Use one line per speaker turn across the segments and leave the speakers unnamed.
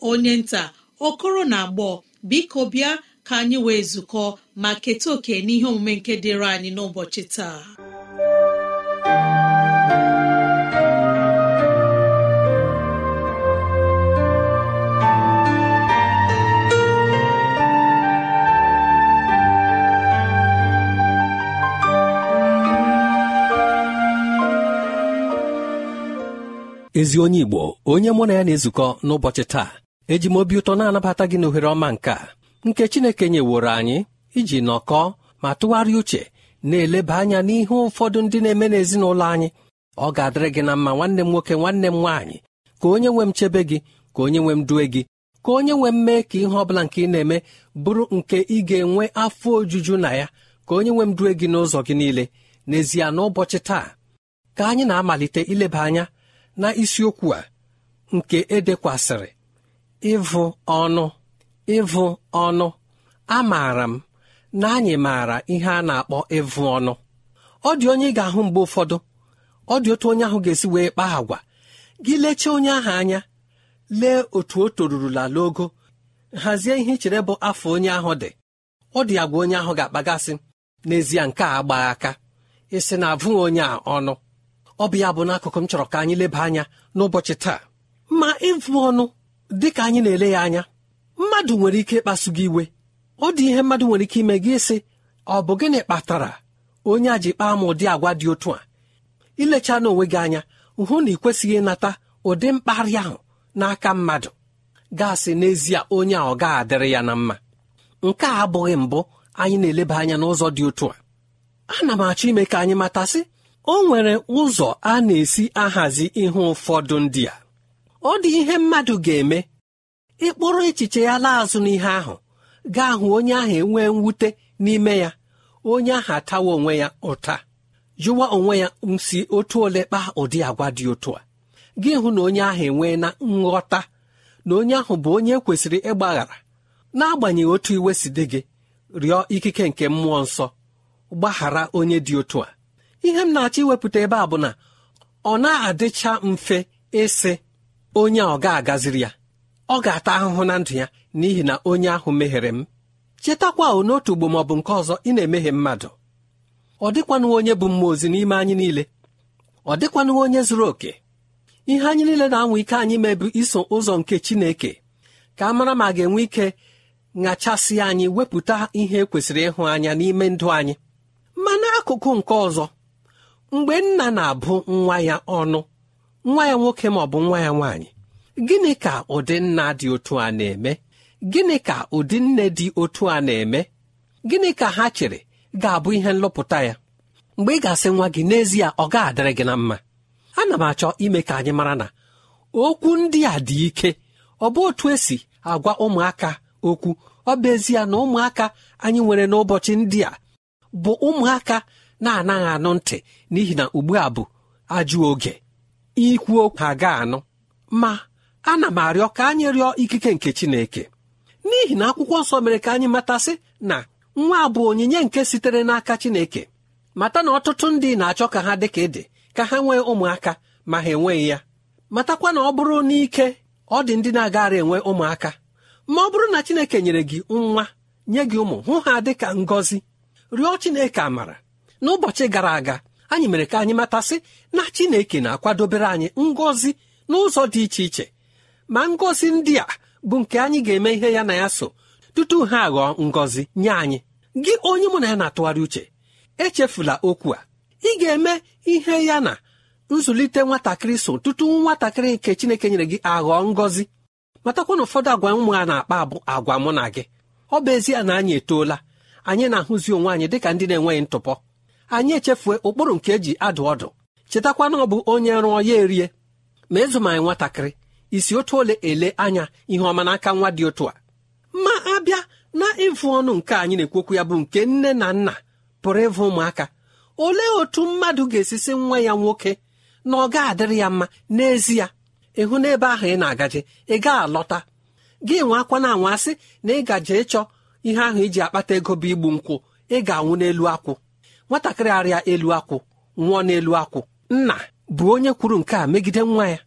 onye nta okoro na agbọ biko bịa ka anyị wee zukọ ma keta oke n'ihe omume nke dịịrị anyị n'ụbọchị taa
ezi onye igbo onye mụ na ya na-ezukọ n'ụbọchị taa eji m obi ụtọ na-anabata gị n'ohere ọma nke a nke Chineke nyeworo anyị iji nọkọọ ma tụgharịa uche na-eleba anya n'ihe ụfọdụ ndị na-eme n'ezinụlọ anyị ọ ga-adịrị gị na mma nwanne m nwoke nwanne m nwaanyị ka onye nwe m chebe gị ka onye nwe m due gị ka onye nwe m mee ka ihe ọ bụla nke ị na-eme bụrụ nke ị ga-enwe afọ ojuju na ya ka onye nwe m due gị n'ụzọ gị niile n'ezie n'ụbọchị taa ka anyị na-amalite ileba anya na isiokwu a nke edekwasịrị ịvụ ọnụ ịvụ ọnụ amaara m na anyị maara ihe a na-akpọ ịvụ ọnụ ọ dị onye ị ga-ahụ mgbe ụfọdụ ọ dị otu onye ahụ ga-esi wee kpaa agwa gị lechaa onye ahụ anya lee otu o torurula n'ogo hazie ihe ichere bụ afọ onye ahụ dị ọ dị agwa onye ahụ ga-akpagasị n'ezie nke a gbaa aka ịsị na abụghị onye a ọnụ ọ bụ ya bụ n'akụkụ m chọrọ ka anyị leba anya n'ụbọchị taa ma ịvụ ọnụ dị ka anyị na-ele ya anya mmadụ nwere ike ịkpasu gị iwe ọ dị ihe mmadụ nwere ike ime gị ịsị ọ bụ gịnị kpatara onye a ji kpaa m ụdị agwa dị otu a ilecha n'onwe gị anya hụ na ị kwesịghị ịnata ụdị mkparị ahụ n'aka mmadụ gaasị n'ezie onye a ọ ga adịrị ya na mma nke a abụghị mbụ anyị na-eleba anya n'ụzọ dị otu a ana m achọ ime ka anyị matasị o nwere ụzọ a na-esi ahazi ihe ụfọdụ ndị a ọ dị ihe mmadụ ga-eme ịkpụrụ echiche ya laa azụ n'ihe ahụ gaa hụ onye ahụ enwee mwute n'ime ya onye ahụ atawa onwe ya ụta jụwa onwe ya nsi otu ole kpaa ụdị agwa dị otu a gị hụ na onye ahụ enwee na nghọta na onye ahụ bụ onye e kwesịrị ịgbaghara n'agbanyeghị otu iwe si dị gị rịọ ikike nke mmụọ nsọ gbaghara onye dị otu a ihe m na-achọ iwepụta ebe a bụ na ọ na-adịcha mfe ịsị onye a ọ ga-agaziri ya ọ ga-ata ahụhụ na ndụ ya n'ihi na onye ahụ meghere m chetakwa n'otu ugbo ma ọ bụ nke ọzọ ị na-emehie mmadụ ọ dịkwanụ onye bụ mmụọ ozi n'ime anyị niile ọ dịkwanụ onye zuru oke ihe anyị niile na-anwa ike anyị mebu iso ụzọ nke Chineke ka a mara ma ga-enwe ike ṅachasị anyị wepụta ihe kwesịrị ịhụ anya n'ime ndụ anyị ma n'akụkụ nke ọzọ mgbe nna na-abụ nwa ya ọnụ nwa ya nwoke ma ọ bụ nwa ya nwaanyị gịnị ka ụdị nna dị otu a na-eme gịnị ka ụdị nne dị otu a na-eme gịnị ka ha chere ga-abụ ihe nlọpụta ya mgbe ị ga-asị nwa gị n'ezie ọ ga-adịrị gị na mma ana m achọ ime ka anyị mara na okwu ndị a dị ike ọ bụ otu esi agwa ụmụaka okwu ọ bụ ezie na ụmụaka anyị nwere n'ụbọchị ndị a bụ ụmụaka na-anaghị anụ ntị n'ihi na ugbu a bụ ajụ oge ikwu okwu ha ga-anụ ma ana m arịọ ka anyị rịọ ikike nke Chineke n'ihi na akwụkwọ nsọ mere ka anyị matasị na nwa bụ onyinye nke sitere n'aka Chineke mata na ọtụtụ ndị na-achọ ka ha dị ka ịdị ka ha nwee ụmụaka ma ha enweghị ya matakwa na ọ bụrụ n'ike ọ dị ndị na-agara enwe ụmụaka ma ọ bụrụ na Chineke nyere gị nwa nye gị ụmụ hụ ha dịka ngọzi rịọ Chineke amara n'ụbọchị gara aga anyị mere ka anyị matasị na chineke na-akwadobere anyị ngọzi n'ụzọ dị iche iche ma ngọzi ndị a bụ nke anyị ga-eme ihe ya na ya so tutu ha aghọọ ngọzi nye anyị gị onye mụ na ya na-atụgharị uche echefula okwu a ị ga-eme ihe ya na nzụlite nwatakịrị so tutu nwatakịrị nke chineke nyere gị aghọọ ngọzi matakwa na ụfọdụ agwa ụmụ a na-akpa abụ agwa mụ na gị ọ bụ ezie na anyị etoola anyị na-ahụzi onwe anyị dịka ndị na-enweghị ntụpọ anyị echefue ụkpụrụ nke eji adụ ọdụ chetakwa na ọ bụ onye rụọ ya erie ma ịzụm anyị nwatakịrị isi otu ole ele anya ihe ọma n'aka nwa dị otu a ma abịa na ịvụ ọnụ nke anyị na-ekwu okwu ya bụ nke nne na nna pụrụ ịvụ ụmụaka olee otu mmadụ ga-esisi nwa ya nwoke na ọ ga-adịrị ya mma n'ezie ịhụ n'ebe ahụ ị na-agaje ị gaa alọta gị nwe akwa na anwa na ị gaje ịchọ ihe ahụ iji e akpata ego bụ igbu nkwụ ị ga-anwụ n'elu akwụ nwatakịrị arịa elu akwụ nwụọ n'elu akwụ nna bụ onye kwuru nke a megide nwa ya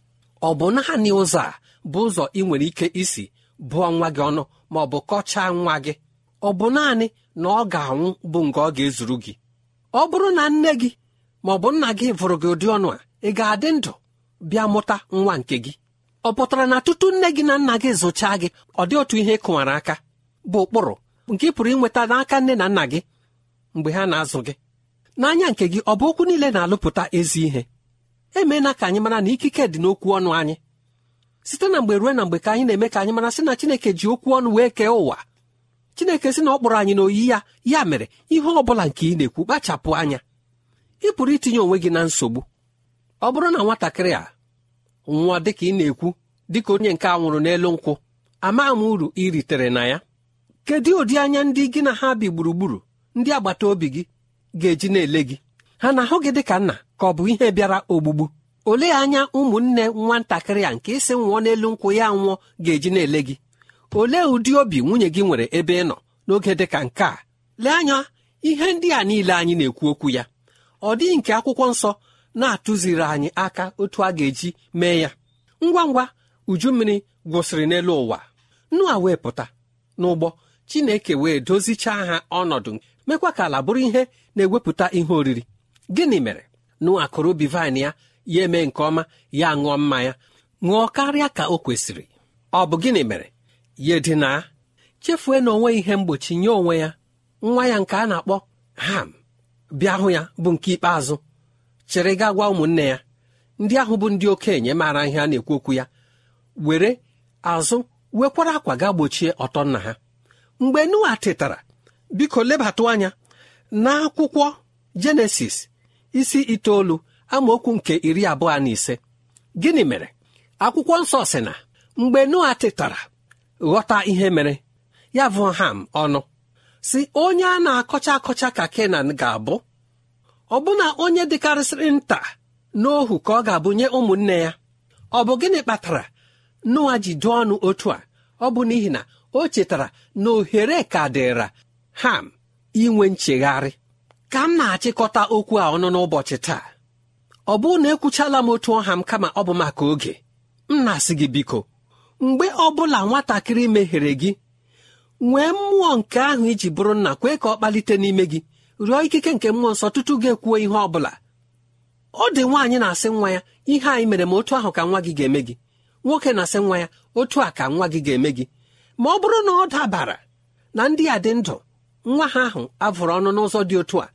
ọ bụ naanị ụzọ a bụ ụzọ ị nwere ike isi bụọ nwa gị ọnụ ma ọ bụ kọchaa nwa gị ọ bụ naanị na ọ ga-anwụ bụ nke ọ ga-ezuru gị ọ bụrụ na nne gị ma ọ bụ nna gị vụrụ gị ụdị ọnụ a ị ga-adị ndụ bịa mụta nwa nke gị ọ pụtara na tutu nne gị na nna gị zụchaa gị ọ dị otu ihe kụwara aka bụ ụkpụrụ nke ị pụrụ inweta n'aka nne na nna gị mgbe ha na-azụ gị n'anya nke gị ọ bụ okwu niile na-alụpụta ezi ihe emeela ka anyị mara na ikike dị n'okwu ọnụ anyị site na mgbe ruo na mgbe ka anyị na-eme ka anyị mara sị na Chineke ji okwu ọnụ wee kee ụwa Chineke sị na ọ kpọrọ anyị n'oyi ya ya mere ihe ọ bụla nke ị na-ekwu kpachapụ anya ị pụrụ itinye onwe gị na nsogbu ọ bụrụ na nwatakịrị a nwa dịka ị na-ekwu dịka onye nke a nwụrụ n'elu nkwụ ama m uru ị ritere na ya kedu ụdị anya ndị gị na ha bi gburugburu ndị agbata obi gị ga-eji na-ele gị ha na-ahụ gị dị ka nna ka ọ bụ ihe bịara ogbugbu olee anya ụmụnne nwatakịrị a nke isi nwụọ n'elu nkwụ ya nwụọ ga-eji na-ele gị olee ụdị obi nwunye gị nwere ebe ị nọ n'oge dị ka nke a lee anya ihe ndị a niile anyị na-ekwu okwu ya ọ dịghị nke akwụkwọ nsọ na-atụziri anyị aka otu a ga-eji mee ya ngwa ngwa uju mmiri gwụsịrị n'elu ụwa nnu a wee pụta n'ụgbọ chineke wee dozichaa ha ọnọdụ mekwa ka ala bụrụ ihe na-ewepụta ihe oriri gịnị mere nụ kụrụ ubi vaịn ya ya eme nke ọma ya ṅụọ mmanya ṅụọ karịa ka o kwesịrị ọ bụ gịnị mere ya edina chefue na onwe ihe mgbochi nye onwe ya nwa ya nke a na-akpọ ham bịa hụ ya bụ nke ikpeazụ chere ga gwa ụmụnne ya ndị ahụ bụ ndị okenye maara ihe a na-ekwu okwu ya were azụ wekwara akwa ga gbochie ọtọ nna ha mgbe Noa tetara biko lebatụ anya n'akwụkwọ jenesis isi itoolu amaokwu nke iri abụọ na ise gịnị mere akwụkwọ nsọ si na mgbe noa tetara ghọta ihe mere ya bụ ham ọnụ si onye a na-akọcha akọcha ka kenan ga-abụ Ọ ọbụna onye dịkarịsịrị nta n'ohu ka ọ ga-abụnye ụmụnne ya ọ bụ gịnị kpatara noa ji ọnụ otu a ọ bụ n'ihi na o chetara na ohere ka dịra ham inwe nchegharị ka m na-achịkọta okwu a ọnụ n'ụbọchị taa ọ bụrụ na ekwuchala m otu ọha m kama ọ bụ maka oge m na-asị gị biko mgbe ọ bụla nwatakịrị meghere gị nwee mmụọ nke ahụ iji bụrụ nna kwee ka ọ kpalite n'ime gị rịọ ikike nke mmụọ nsọ tutu gị ekwuo ihe ọ bụla ọ dị nwaanyị na-asị nwa ya ihe anyị mere ma otu ahụ ka nwa gị ga-eme gị nwoke na-asị nwa ya otu a ka nwa gị ga-eme gị ma ọ bụrụ na ọ dabara na ndị a dị ndụ nwa ha ahụ avụrụ ọnụ n'ụzọ dị otu a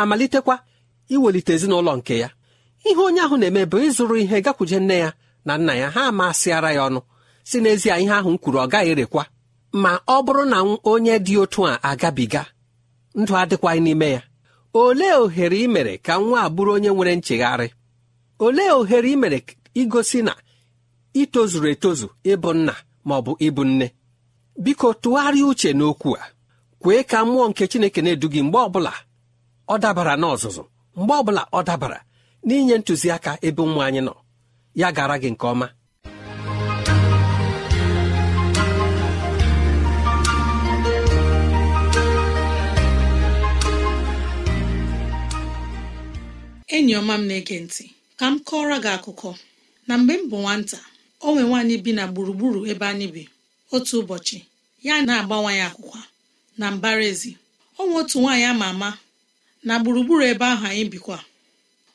amalitekwa iwelite ezinụlọ nke ya ihe onye ahụ na-eme bụ ịzụrụ ihe gakwuje nne ya na nna ya ha amasịara ya ọnụ si n'ezie ihe ahụ m kwuru ọ gaghị erekwa ma ọ bụrụ na onye dị otu a agabiga ndụ adịkwaghị n'ime ya olee ohere ị mere ka nwa a bụrụ onye nwere nchegharị olee ohere ị mere igosi na itozuru etozu ịbụ nna ma ọ bụ ịbụ nne biko tụgharịa uche n'okwu a kwee ka mmụọ nke chineke na-edu gị mgbe ọbụla ọ dabara n'ọzụzụ mgbe ọbụla ọ dabara n'inye ntụziaka ebe ụmụ anyị nọ ya gara gị nke ọma
enyi ọma m na-ege ntị ka m kọọrọ gị akụkọ na mgbe m bụ nwata o nwe nwaanyị bi na gburugburu ebe anyị bi otu ụbọchị ya na-agbanwe ya akwụkwa na ezi. ọ nwe otu nwaanyị ama ama na gburugburu ebe ahụ anyị bikwa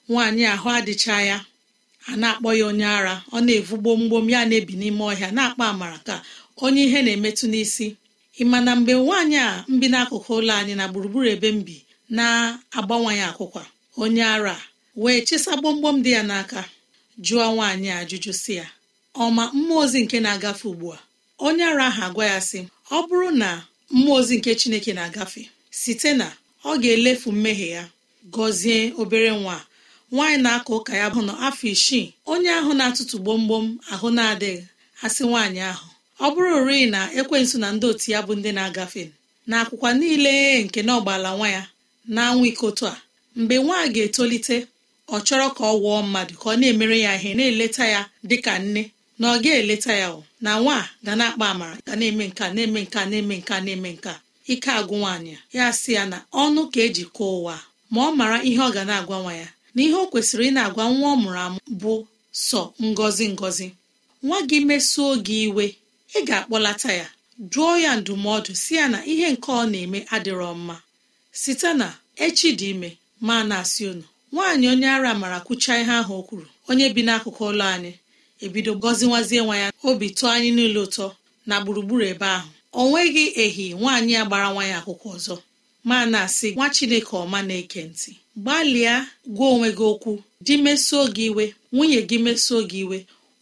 nwaanyị ahụ adịcha ya a na-akpọ ya onye ara ọ na-evu gbomgbom ya na-ebi n'ime ọhịa na-akpa amara ka onye ihe na-emetụ n'isi ịma na mgbe nwaanyị a mbi n'akụkụ ụlọ anyị na gburugburu ebe mbi na-agbanwanye akwụkwa onye ara wee chesa gbomgbom dị ya n'aka jụọ nwaanyị a ajụjụ si ya ọma mmụọ ozi nke na-agafe ugbu a onye ara ahụ agwa ya sị ọ bụrụ na mmụọ ozi nke chineke na-agafe site na ọ ga-elefu mmehie ya gọzie obere nwa nwaanyị na akọ ụka ya bụ na afọ isii onye ahụ na-atụtụ gbomgbom ahụ na-adịghị asị nwaanyị ahụ ọ bụrụ rịị na ekwensu na ndị otu ya bụ ndị na-agafe na akwụkwa niile nke na ọgbala nwa ya na ikotu a mgbe nwa ga-etolite ọ chọrọ ka ọ wụọ mmadụ ka ọ na-emere ya ihe na-eleta ya dịka nne na ọ ga-eleta ya na nwa ga na-akpa amara ga na-eme nka na-eme nka na-eme nka na-eme nka ike agwụ nwaanyị ya sị ya na ọnụ ka eji kụọ ụwa ma ọ mara ihe ọ ga na-agwa nwa ya na ihe o kwesịrị ị na-agwa nwa ọ mụrụ amụ bụ sọ ngọzi ngọzi nwa gị mesuo gị iwe ị ga-akpọlata ya jụọ ya ndụmọdụ si ya na ihe nke ọ na-eme adịrọ mma site na echi dị ime ma na-asị unu nwaanyị onye ara mara kwuchaa ihe ahụ o kwuru onye bi n'akụkụ ụlọ anyị ebido gọziwazie nwa ya obi tụọ anyị niile ụtọ na gburugburu ebe ahụ ọ nweghị ehi nwaanyị a gbara nwa ya akwụkwọ ọzọ ma na-asị nwa chineke ọma na-eke ntị gbalịa gwa onwe gị okwu di mesuo gị iwe nwunye gị mesuo gị iwe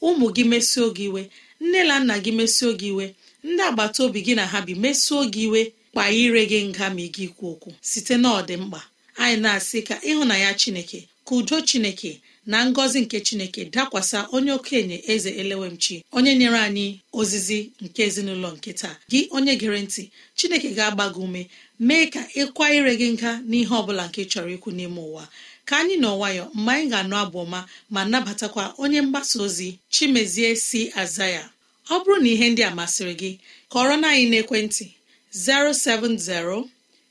ụmụ gị mesuo gị iwe nne na nna gị mesuo gị iwe ndị agbata obi gị na ha bi mesuo gị iwe kpa ire gị nga ma ị gị okwu site na ọdịmkpa anyị na-asị ka ịhụnanya chineke ka udo chineke na ngọzi nke chineke dakwasa onye okenye eze elewemchi onye nyere anyị ozizi nke ezinụlọ nke taa gị onye gere ntị chineke ga-agba gị ume mee ka ịkwa ire gị nga n'ihe ọ bụla nke chọrọ ikwu n'ime ụwa ka anyị nọ nwayọ mgbe anyị ga-anụ abụ ọma ma nabatakwa onye mgbasa ozi chimezie si aza ya ọ bụrụ na ihe ndị a masịrị gị kọrọ na anyị n'ekwentị 070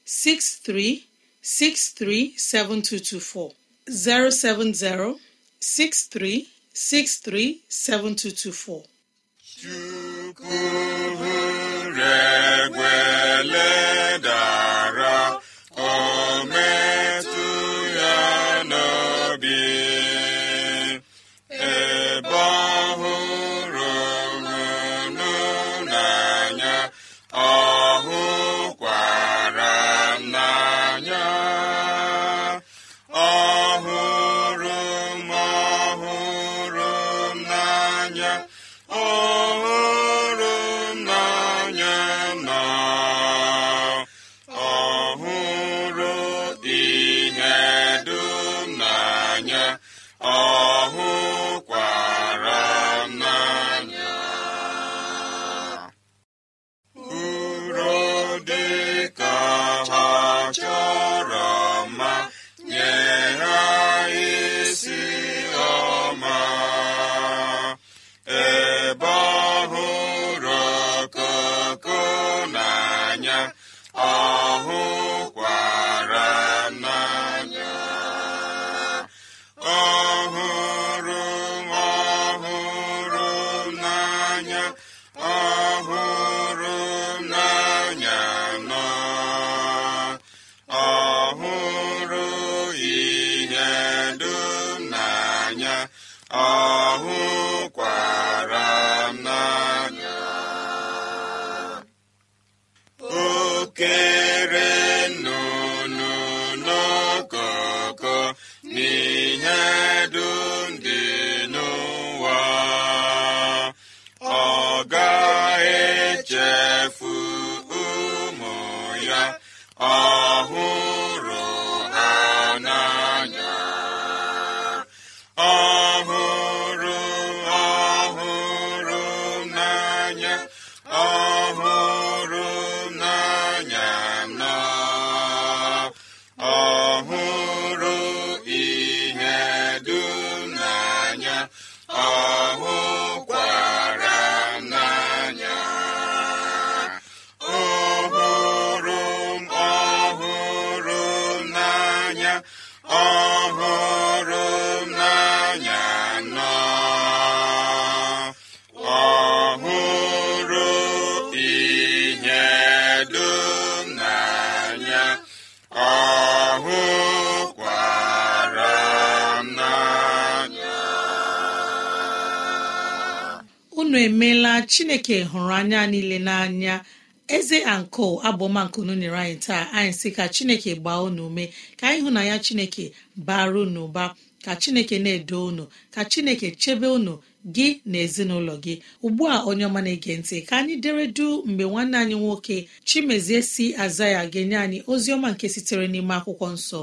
6363 7224 070 63637224
Chukwu regwele ọ ga-echefu ụmụ ya ọhụrụ
emeela chineke hụrụ anya niile n'anya eze anko abụọmankunu nyere anyị taa anyị sị ka chineke gbaa unu ume ka anyị hụ na ya chineke bara unu ụba ka chineke na-edo unu ka chineke chebe unu gị na ezinụlọ gị ugbu a onye ọma na-ege ntị ka anyị dere du mgbe nwanne anyị nwoke chimezie si aza ya ga-enye anyị ozi ọma nke sitere n'ime akwụkwọ nsọ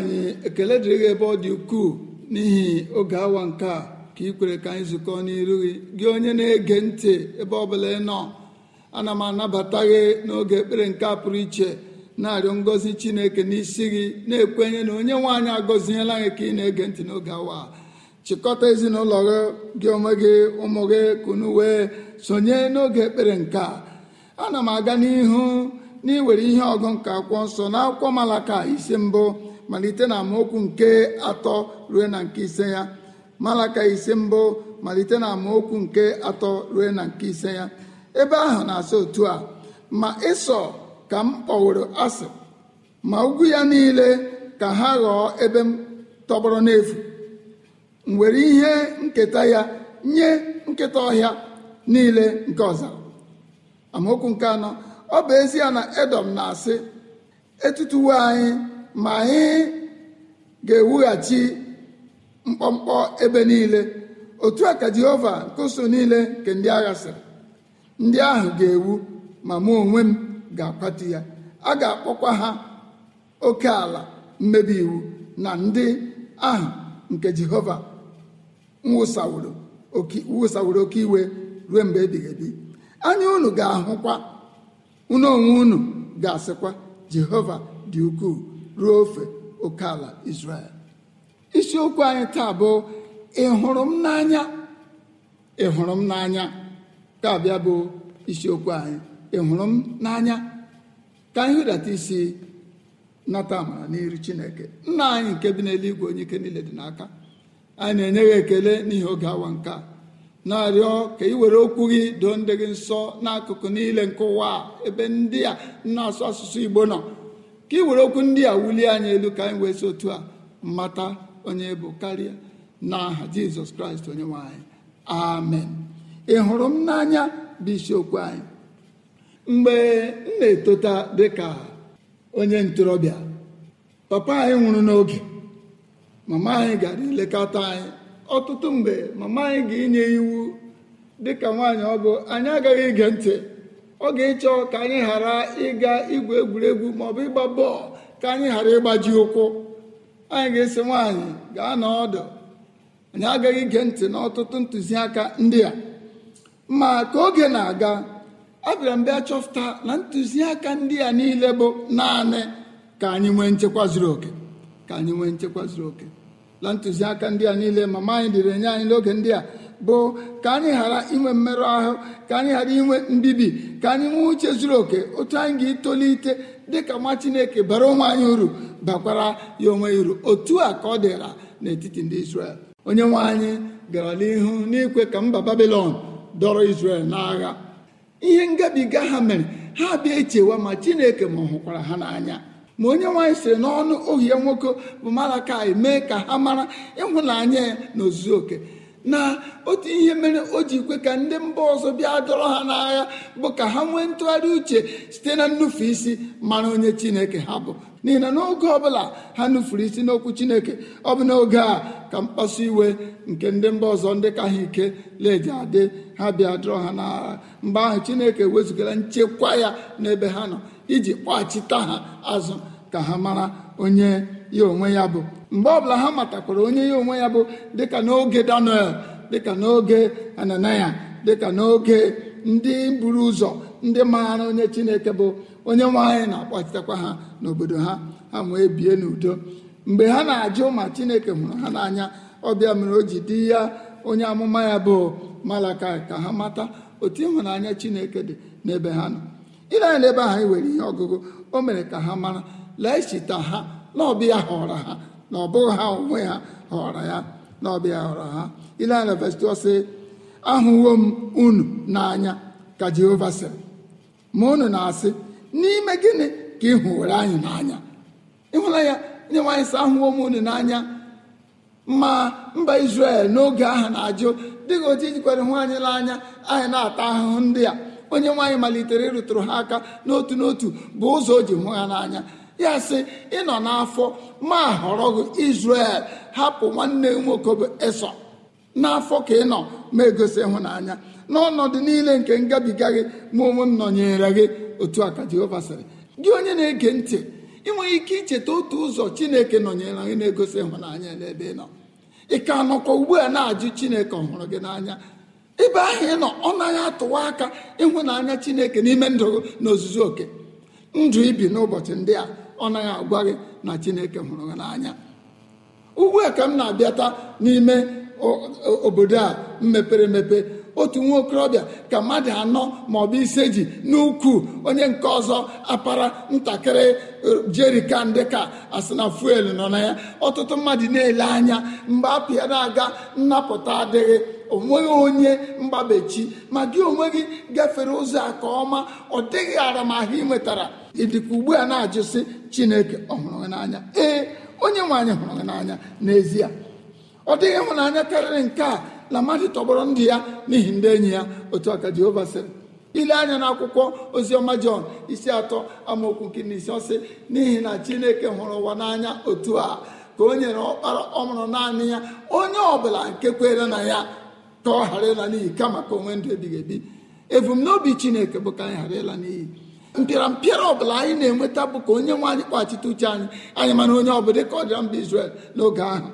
anyị
ekele dịrị gị ebe ọ dị ukwuu n'ihi oge awa nke a ka ị kwere ka anyị zụkọ n'iru gị gị onye na-ege ntị ebe ọ bụla ị nọ ana m anabata gị n'oge ekpere nke a pụrụ iche na-arịọ ngọzi chineke n'isi gị na-ekwenye na onye nwe anyị agọziela gị ka ị na-ege ntị n'oge awa chịkọta ezinụlọ gị gị onwe gị ụmụ gị kunu wee sonye n'oge ekpere nke a ana m aga n'ihu n'iwere ihe ọgụ nke akwụkwọ nsọ na akwụkwọ malaka isi mbụ malite na amaokwu nke atọ ruo na nke ise ya malaka ise mbụ malite na amaokwu nke atọ ruo na nke ise ya ebe ahụ na-asị otu a ma ịsọ ka m kpọworo asị ma ugwu ya niile ka ha ghọọ ebe m tọgbọrọ n'efu m ihe nketa ya nye nketa ọhịa niile nke ọzara amaokwu nke anọ ọ bụ ezie na edom na-asị etutuwo anyị ma anyị ga-ewughachi mkpọmkpọ ebe niile otu a ka Jehova nkụso niile nke ndị agha sịrị ndị ahụ ga-ewu ma mụ onwe m ga-akwatu ya a ga-akpọkwa ha oke ala mmebi iwu na ndị ahụ nke Jehova nwụsaworo oke iwe ruo mgbe ebighị anya unu ga-ahụkwa unu onwe unu ga-asịkwa Jehova dị ukwuu ruo ofe oke ala Israel isiokwu anyị taa bụ ịhụrụ m n'anya ị hụrụ m n'anya ka bịa bụ isiokwu anyị ịhụrụ m n'anya ka anyị hụdata isi nata amara n'iru chineke nna anyị nke bi n'eluigwe onye ike niile dị n'aka anyị na-enye gị ekele n'ihi oge awa nke a na-arịọ ka ị were okwu gị doo ndị gị nsọ n'akụkụ niile nke ụwa ebe ndị a na-asụ asụsụ igbo nọ ka ị okwu ndị a wulie anyị elu ka anyị wee si otu a mata onye bụ karịa n'aha jizọs kraịst onye nwanyị amen ị hụrụ m n'anya bụ isiokwu anyị mgbe m na-etota dịka onye ntorobịa papa anyị nwụrụ n'oge mama anyị gara ilekọta anyị ọtụtụ mgbe mama anyị ga-enye iwu dịka nwaanyị ọ bụ anyị agaghị ige ntị ọ ga-ịchọ ka anyị ghara ịga igwu egwuregwu maọbụ ịgba bọọlụ ka anyị ghara ịgbaji ụkwụ anyị ga-esi nwaanyị gaa n'ọdụ anyị agaghị ige ntị n'ọtụtụ ntụziaka ndị a ma ka oge na-aga abịara m bịa chọpụta na ntụziaka ndị a niile bụ naanị ka anyị nwee nchekwa zuru oke ka anyị nwee nchekwa zuru oke na ntụziaka ndị a niile mama anyị dịrị nye anyị n'oge ndị a bụ ka anyị ghara inwe mmerụ ahụ ka anyị ghara inwe mbibi ka anyị nwee uche zuru oke otu anyị ga-etolite dịka nwa chineke bara onwe anyị uru bakwara ya onwe uru otu a ka ọ dịra n'etiti ndị Israel onye nwe anyị gara n'ihu n'ikwe ka mba Babilọn dọrọ Israel n'agha ihe ngabiga ha mere ha bịa echewa ma chineke ma hụkwara ha n'anya ma onye nwaanyị sịrị n'ọnụ ohie nwoke bụ Malakai mee ka ha mara ịhụnanya ya n'ozuzu oke na otu ihe mere o ji kwe ka ndị mba ọzọ bịa dọrọ ha n'agha bụ ka ha nwee ntụgharị uche site na nnufu isi mara onye chineke ha bụ n'ihi na n'oge ọbụla ha nufuru isi n'okwu chineke ọ bụ n'oge a ka mkpasu iwe nke ndị mba ọzọ ndị ka ha ike leji adị ha bịa dọrọ ha n'agha mgbe ahụ chineke wezugara nchekwa ya n'ebe ha nọ iji kpọghachita ha azụ ka ha mara onye ya onwe ya bụ mgbe ọbụla ha matakwara onye ya onwe ya bụ dịka n'oge daniel dịka n'oge ananaya dịka n'oge ndị buru ụzọ ndị maara onye chineke bụ onye nwe anyị na-akpọchitakwa ha n'obodo ha ha wee bie n'udo mgbe ha na-ajụ ma chineke hụrụ ha n'anya ọbịa mere o ji dị ya onye amụma ya bụ malaka ka ha mata otu ịhụnanya chineke dị n'ebe ha nọ ile anya n'ebe anyị e nwere ihe ọgụgụ o mere ka ha mara lee chita ha na ọbịa họrọ ha na ọ bụghị ha onwe ha họrọ ya na ọbịa họrọ ha ile anya sị ahụwo m unu n'anya ka jehova sịrị ma unu na-asị n'ime gịnị ka ị hụwere anyị n'anya ịhụla ya nye nwaanyị sị ahụwo m unu n'anya ma mba Izrel n'oge ahụ na-ajụ dịka otu ijikwere hụ anyị n'anya anyị na-ata ahụhụ ndị a onye nwaanyị malitere ịrụtụrụ ha aka n'otu n'otu bụ ụzọ o ji hụ ha n'anya ya sị ịnọ n'afọ ma họrọ gị Izrel hapụ nwanne nwoke bụ n'afọ ka ị nọ ma egosi ịhụnanya n'ọnọdụ niile nke ngabiga gị ma onwe m nọnyere gị otu a ka Jehova sịrị gị onye na-ege ntị ị nwere ike icheta otu ụzọ Chineke nọnyere gị na-egosi ịhụnanya n'ebe ị nọ ị ka nọkwa ugbu a na-ajụ Chineke ọhụrụ gị n'anya ebe ahụ ị nọ ọ naghị atụwa aka ịhụnanya Chineke n'ime ndụ na ozuzu oke ndụ ibi n'ụbọchị ndị a ọ naghị agwa gị na chineke hụrụ gị n'anya ugbu a ka m na-abịata n'ime obodo a mepere emepe otu nwa okorobịa ka mmadụ anọ maọbụ ise ji n'ukwu onye nke ọzọ apara ntakịrị jerikan dịka asị na fuel nọ na ya ọtụtụ mmadụ na-ele anya mgbe apụ ya na-aga nnapụta adịghị onweghị onye mgbabechi ma gị onwe gị gafere ụzọ a ka ọma ọ dịghị aramahụ ị nwetara ịdịka ugbu a na-ajụsị chineke ọ hụrụ n'anya ee onye nwe anyị hụrụ n'anya n'ezie ọ dịghị ịhụnanya karịrị nke a na mmadụ tọgbọrọ ndị ya n'ihi ndị enyi ya otu aka Jehova sịrị ile anya na akwụkwọ oziọma Jọn isi atọ amaokwu nke na isi ọsị n'ihi na Chineke hụrụ ụwa n'anya otu a ka o nyere ọkpara ọmụrụ naanị ya onye ọbụla nke kwere na ya ka ọ ghara ịla n'iyi kama ka onwe ndụ ebighị ebi ebumnobi chineke bụ ka anyị ghara ịla n'iyi ọ ọbụla anyị na-enweta bụ ka onye nwe anyị kpachite uche anyị anyị mana onye ọbụla dịka ọ dịra mba Izrel n'oge ahụ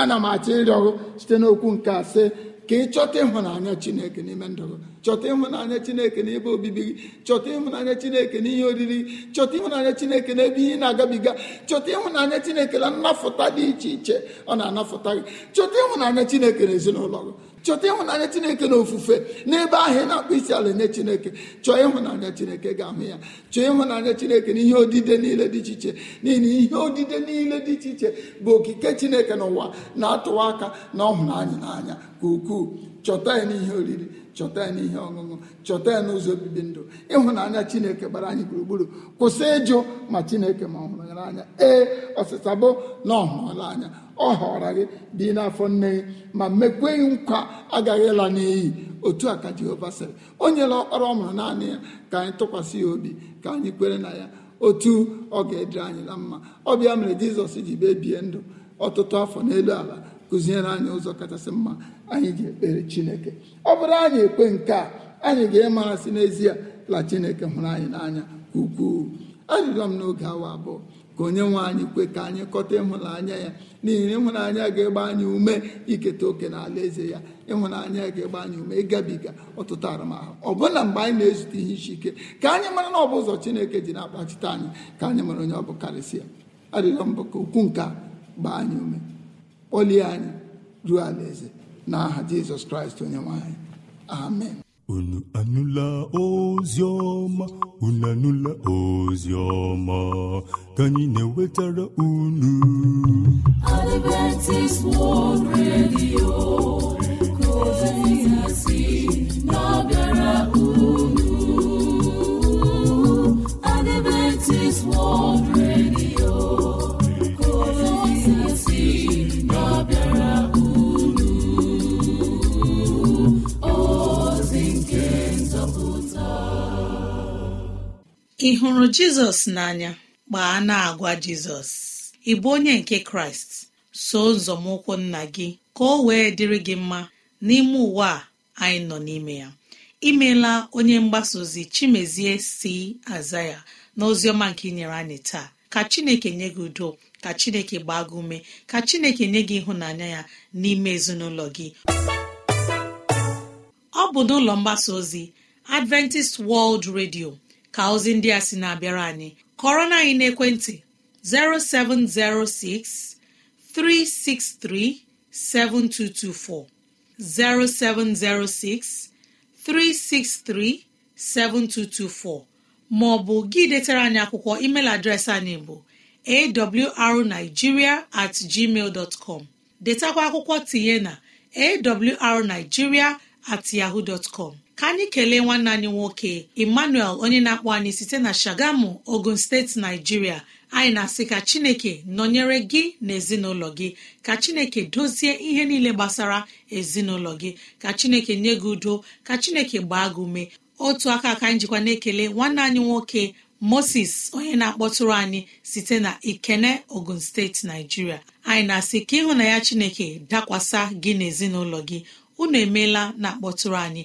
ana m achọ ịrịọ site n'okwu nke ase ka ị chọta ịhụnanya chineke n'ime ndụ gị chọta ịhụnanya chineke n'ebe obibi gị chọta ịhụnanya chineke n'ihe oriri chọta ịhụnanya chineke n'ebe ihe na-agabiga chọta ịhụnanya chineke na nnafụta dị iche iche ọ na-anafụta gị chọta ịhụnanya chineke n'ezinụlọ gị chọta ịhụnanya chineke na ofufe n'ebe ahụ ị na-akpọ isi ala nye chineke chọọ ịhụnanya chineke ga-ahụ ya chọọ ịhụnanya chineke na ihe odide niile dị iche iche n'ihi ihe odide niile dị iche iche bụ okike chineke n'ụwa na-atụwa aka na ọhụnanya n'anya ka ukwuu chọta ya n'ihe oriri chọta ya n'ihe ọṅụṅụ chọta ya n'ụzọ obibi ndụ ịhụnanya chineke gbara anyị gburugburu kwụsị ịjụ ma chineke ma ọ hụrụ ya ee ọsịsa bụ na ọ anya ọ họrọ gị dị n'afọ nne gị ma mekwe nkwa agaghị ịla n'iyi otu a ka jehova sịrị o nyela ọkpara ọ naanị ya ka anyị tụkwasị ya obi ka anyị kwere na ya otu ọ ga-edere anyị na mma ọ bịa mere jizọs ji bebie ndụ ọtụtụ afọ n'elu ala kụziere anyị ụzọ kachasị mma anyị ga-ekpere chineke ọ bụrụ anyị ekwe nke a anyị ga-emarasị n'ezie la chineke hụrụ anyị n'anya ukwuu arịrịọ m n'oge awa abụọ ka onye nwe anyị kwe ka anyị kọta ịhụnanya ya n'ihi na ịhụnanya ga-egba anyị ume iketa oke na ala eze ya ịhụnanya ga-egba anyị ume ịgabiga ọtụtụ arụmahụ bụla mgbe anyị na-ezute ihe isi ike ka anyị mara na ọ bụ ụzọ chineke ji na-akpachite anyị ka anyị mara onye ọ bụ karịsịa arịrịọ mbụ ka ukwu nke gbaa anyị ume kpọlie anyị ruo ala eze n'aha jizọs kraịst onye nwanyị amen
unu anụla ozi unu anụla ozi ọma ka anyị na enwetara unu unu Adventist World Radio
ị hụrụ jizọs n'anya gbaa na-agwa jizọs ị bụ onye nke kraịst so nzọmụkwụ nna gị ka o wee dịrị gị mma n'ime ụwa a anyị nọ n'ime ya imeela onye mgbasa ozi chimezie si aza ya na oziọma nke inyere anyị taa ka chineke nye gị udo ka chineke gbaa gị ume ka chineke nye gị ịhụnanya ya n'ime ezinụlọ gị ọ bụ n'ụlọ mgbasa ozi adventist world radio ka ozi ndị a sị na-abịara anyị kọrọ na anyị n'ekwentị 0706 363 7224 0706 363 7224 ma ọ bụ gị detara anyị akwụkwọ email adreesị anyị bụ awrnigeria at gmail dot com detakwa akwụkwọ tinye na awrnigeria at yahoo dot com ka anyị kelee nwanne anyị nwoke emmanuel onye na-akpọ anyị site na shagamu ogun steeti naijiria anyị na-asị ka chineke nọnyere gị na ezinụlọ gị ka chineke dozie ihe niile gbasara ezinụlọ gị ka chineke nye gị udo ka chineke gbaa gị ume otu aka aka anyị jikwa na-ekele nwanne anyị nwoke moses onye na-akpọtụrụ anyị site na ikene ogun steeti naijiria anyị na-asị ka ịhụ na ya chineke dakwasa gị na gị unu emeela na akpọtụrụ anyị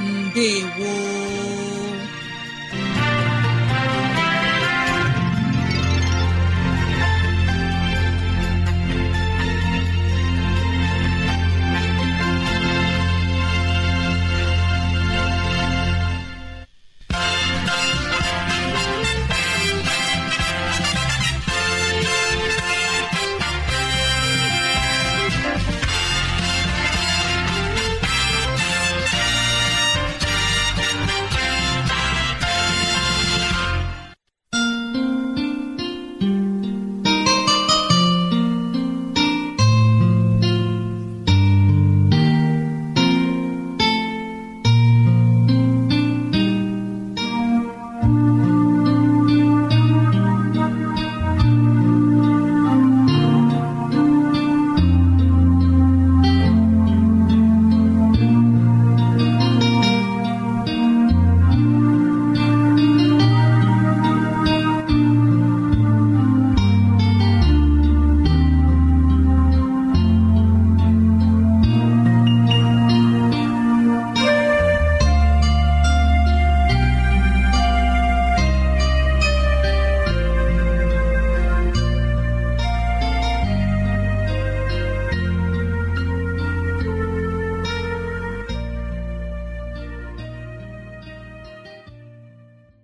mbe gboo